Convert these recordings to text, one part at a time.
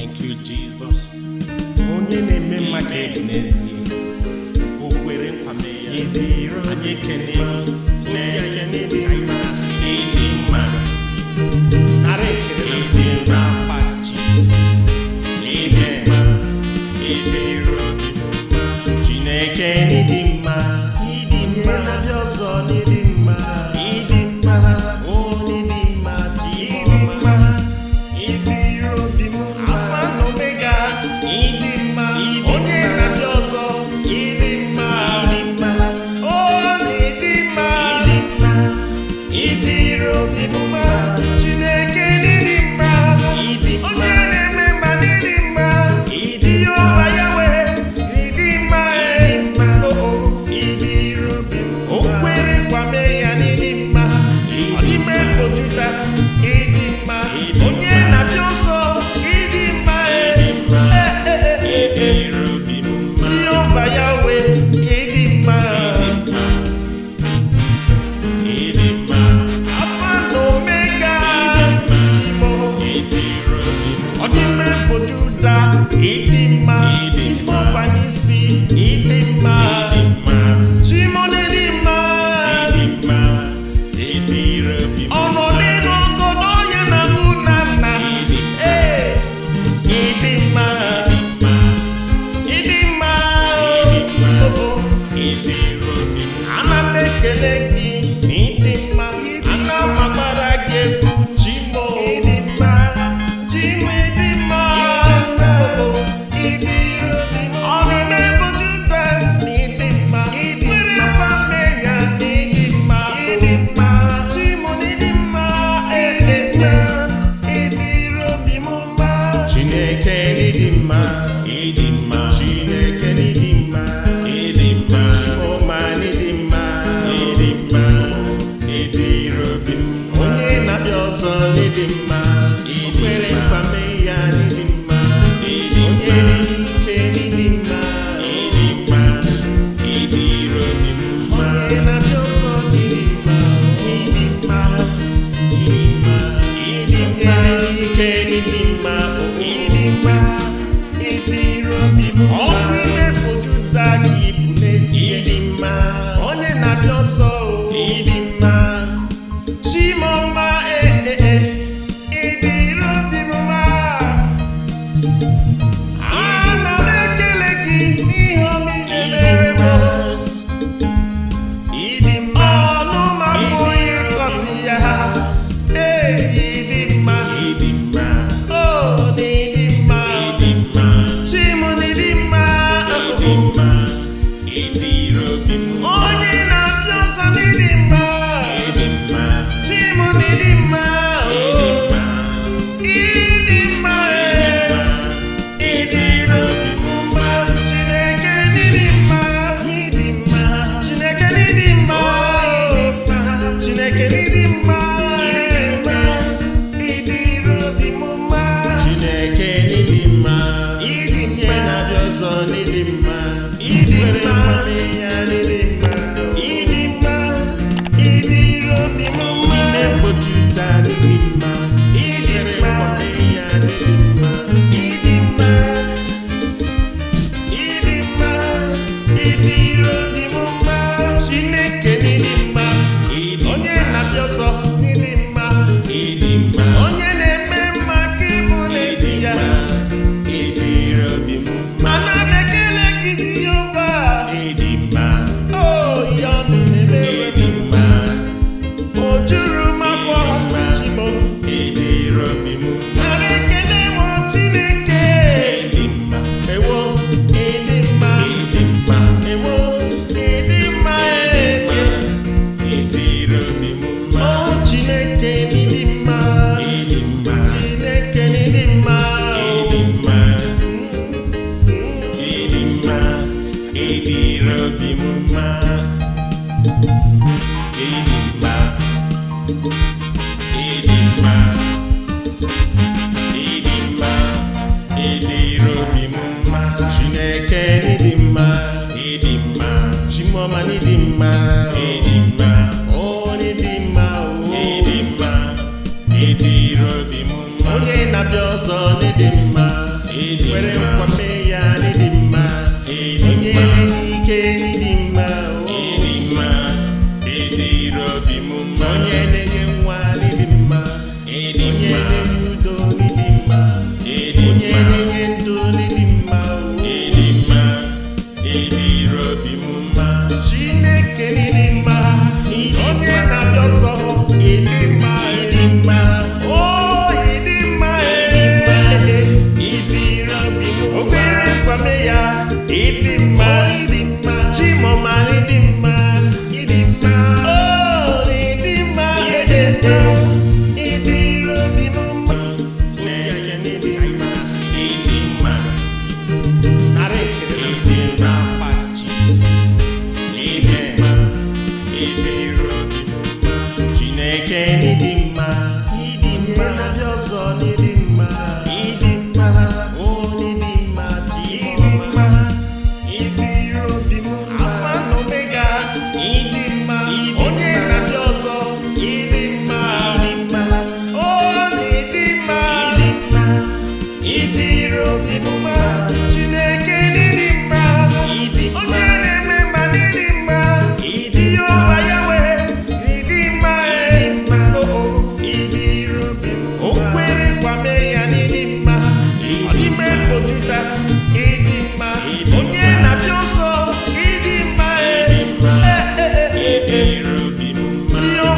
Thank you, Onye na-eme mma ga n'ezie. O kwere nkwa mee ya. Ị onye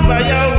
Baya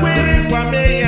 kwere kwa mee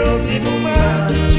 eu digo mais.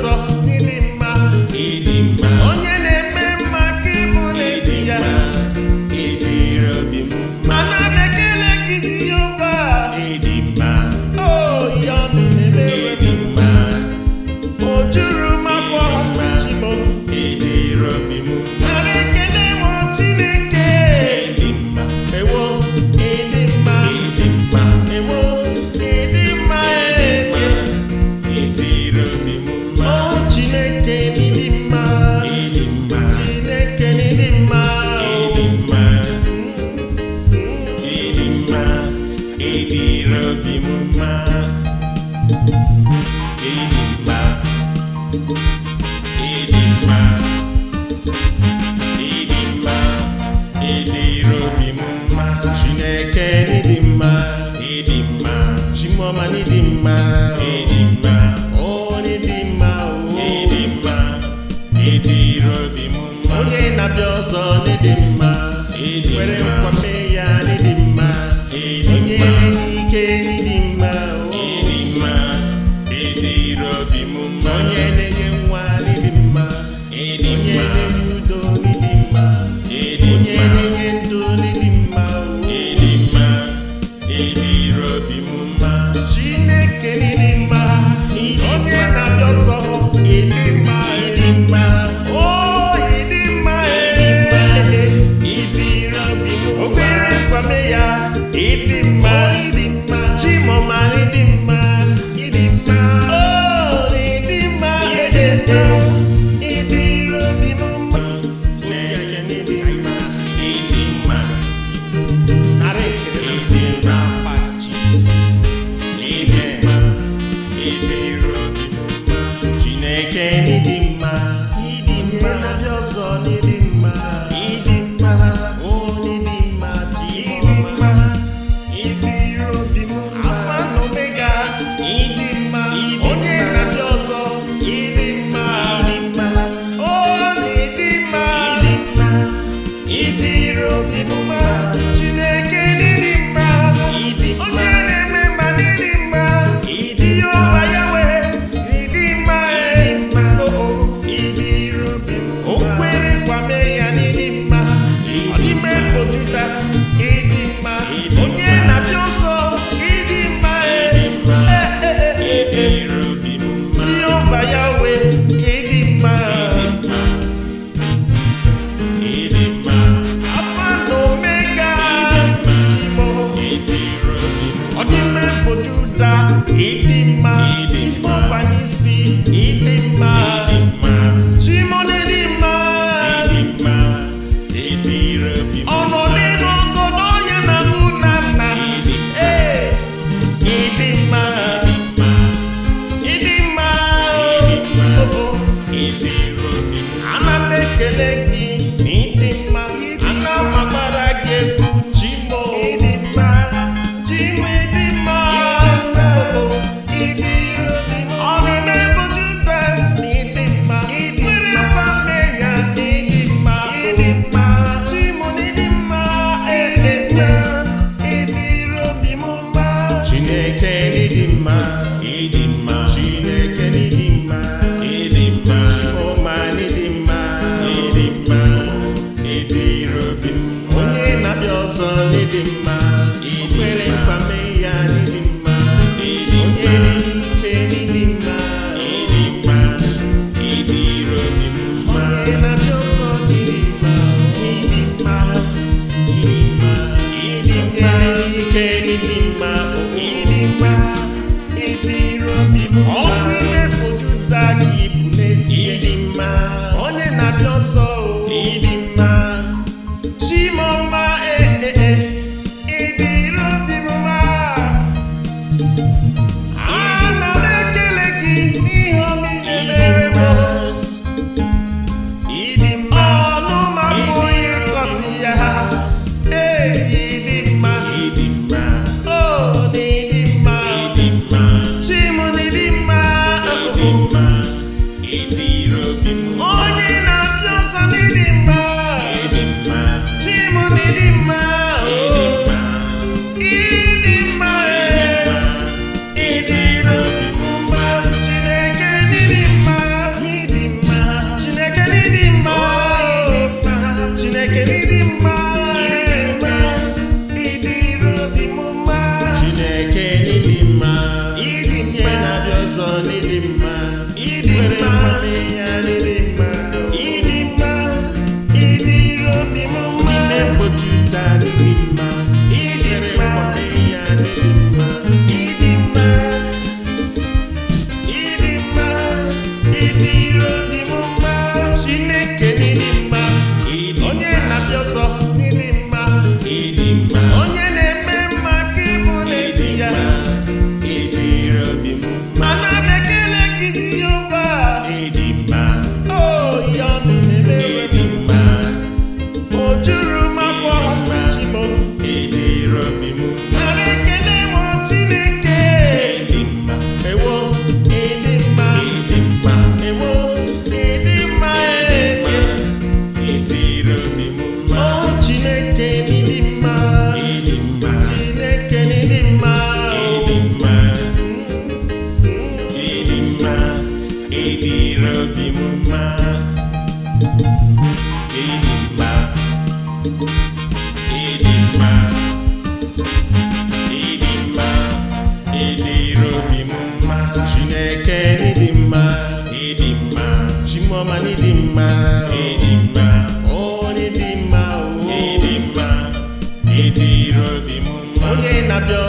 It's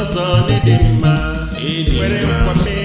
ọzọ dị mma nwere nkwame